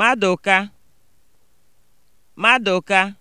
Madụka Madụka